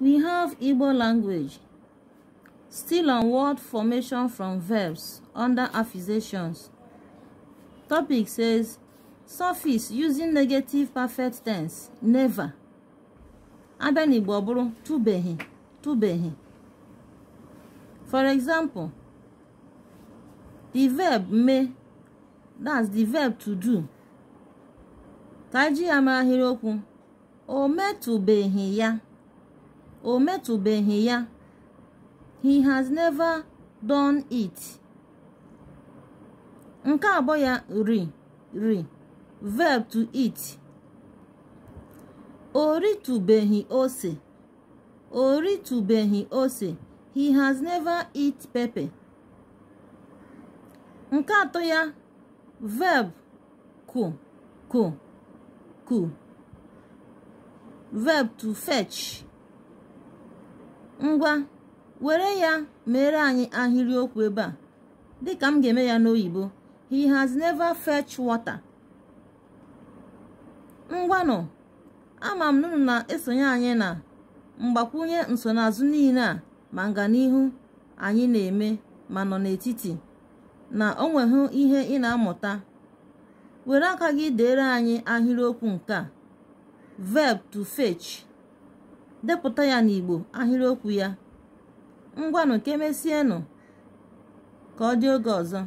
We have Igbo language, still on word formation from verbs under affixations. Topic says, suffix using negative perfect tense, never. Abịa n'Igbo ọ bụrụ tụbeghị tụbeghị. For example, the verb me, that's the verb to do. Ka amahiroku, o me mara ahịrịokwu, o ya. o metụbeghị ya he has never done it nke abụọ ya ri ri verb to eat o ritụbeghị ose o ritụbeghị ose he has never eat pepper nke atọ ya verb ku ku ku verb to fetch Ngwa were ya mere anyị ahịrịokwu ebe a dịka m ga-eme ya n'oyibo he has never fetch water. nọ ama m nụnụ na-esonye anyị na mgbakwunye nsonaazụ niile a ma nga n'ihu anyị na-eme ma nọ n'etiti na o nweghị ihe ị na-amụta were aka gị dere anyị ahịrịokwu nke a verb to fetch depụta ya n'Igbo ahịrịokwu ya ngwanụ ka emesienụ ka ọ dị oge ọzọ